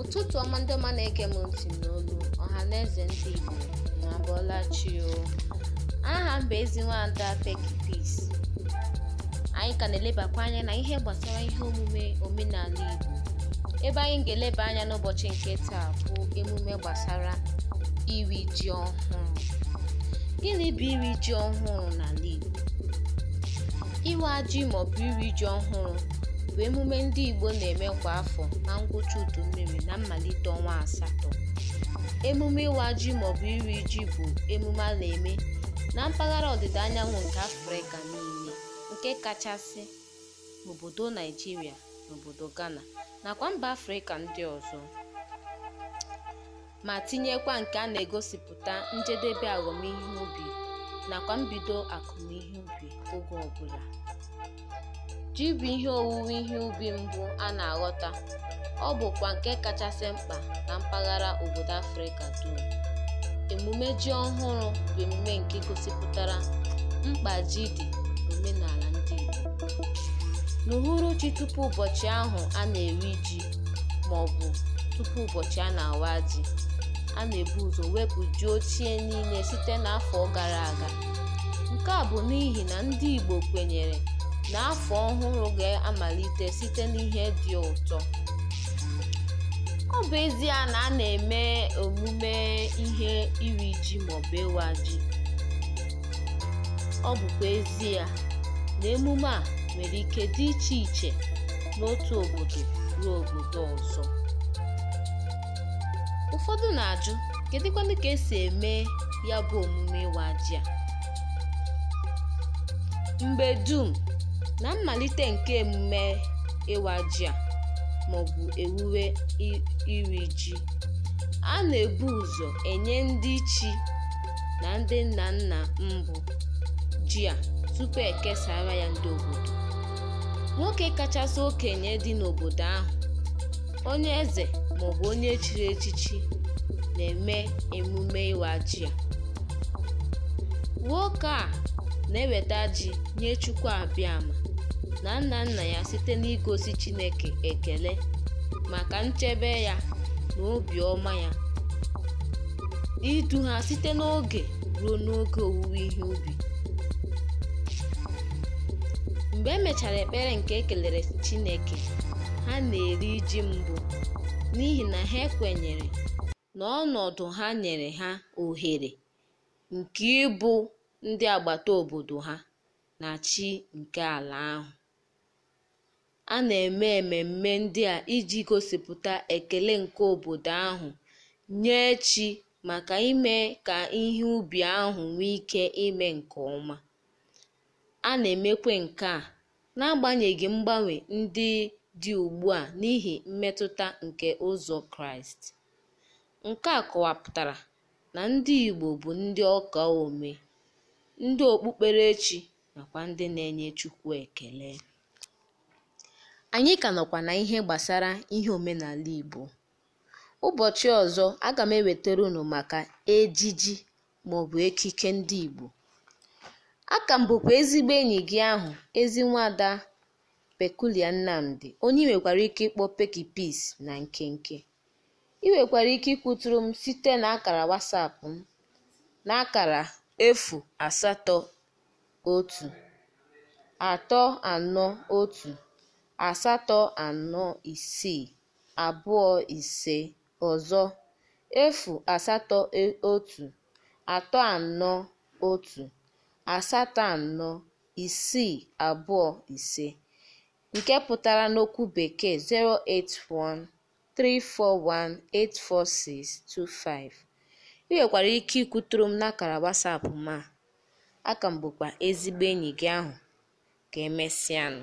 ụtụtụ ọma ndị ọma na-ege m ntị n'olu ọha na eze ndị igbo na abọla chi aha m bụ ezi nwada Peggy anyị ka na-elebakwa anya na ihe gbasara ihe omume omenala igbo ebe anyị ga-eleba anya n'ụbọchị nke taa bụ emume gbasara iri ji ọhụrụ gịnị bụ iri ji ọhụrụ n'ala igbo iwe ajị maọbụ iri ji ọhụrụ bụ emume ndị Igbo na-eme kwa afọ na ngwụcha mmiri na mmalite ọnwa asatọ. Emume Ịwa Ji maọbụ Iri Ji bụ emume a na-eme na mpaghara ọdịda anyanwụ nke Afrịka niile, nke kachasị n'obodo Naịjirịa n'obodo obodo Ghana nakwa mba Afrịka ndị ọzọ, ma tinyekwa nke a na-egosipụta njedebe ahụmihe ubi nakwa mbido akụmihe ubi oge ọbụla. Ji bụ ihe owuwe ihe ubi mbụ a na-aghọta, ọ bụkwa nke kachasị mkpa na mpaghara obodo Afrịka dum. Emume Ji Ọhụrụ bụ emume nke gosipụtara mkpa ji dị omenala ndị Igbo. N'uhuruchi tupu ụbọchị ahụ a na-eri ji maọbụ tupu ụbọchị a na-awa ji, a na-ebu ụzọ wepụ ji ochie niile site n'afọ gara aga. Nke a bụ n'ihi na ndị Igbo kwenyere N'afọ ọhụrụ ga-amalite site n'ihe dị ụtọ. Ọ bụ ezie na a na-eme omume ihe iri ji maọbụ ịwa ji, ọ bụkwa ezie na emume a nwere ike dị iche iche n'otu obodo ruo obodo ọzọ. Ụfọdụ na-ajụ kedụkwanụ ka esi eme ya bụ omume ịwa ji a? Mgbe dum Na mmalite nke emume ịwa ji a (maọbụ ewuwe iri ji), a na-ebu ụzọ enye ndị chi na ndị nna nna mbụ ji a tupu ekesara ya ndị obodo. Nwoke kachasị okenye dị n'obodo ahụ, onye eze maọbụ onye chiri echichi, na-eme emume ịwa ji a. Nwoke a na-eweta ji nye Chukwu ama. na nna nna ya site n'igosi Chineke ekele maka nchebe ya na obiọma ya, idu ha site n'oge ruo n'oge owuwe ihe ubi. Mgbe emechara ekpere nke ekelere Chineke, ha na-eri iji mbụ n'ihi na ha ekwenyere na ọnọdụ ha nyere ha ohere nke ịbụ ndị agbata obodo ha na chi nke ala ahụ. A na-eme ememme ndị a iji gosipụta ekele nke obodo ahụ nye chi maka ime ka ihe ubi ahụ nwee ike ime nke ọma. A na emekwe nke a n'agbanyeghị mgbanwe ndị dị ugbu a n'ihi mmetụta nke ụzọ Kraịst. Nke a kọwapụtara na ndị Igbo bụ ndị ọka ome," ndị okpukperechi nakwa ndị na-enye Chukwu ekele. Anyị ka nọkwa na ihe gbasara ihe omenala Igbo. Ụbọchị ọzọ aga m ewetara unu maka ejiji maọbụ ekike ndị Igbo. Aka m bụkwa ezigbo enyi gị ahụ ezi nwada Peculia Nnamdi onye ị nwekwara ike ịkpọ peki Peace na nkenke. Ị nwekwara ike ịkwụtụrụ m site na akara WhatsApp m na akara anọ otu. asatọ anọ isii abụọ ise ọzọ efu asatọ e, otu atọ anọ otu asatọ anọ isii abụọ ise nke pụtara n'okwu Bekee 081 341 84625. Ị ike ikwuturu m n'akara WhatsApp m a, aka m bụkwa ezigbo enyi gị ahụ. Ka emesịanụ.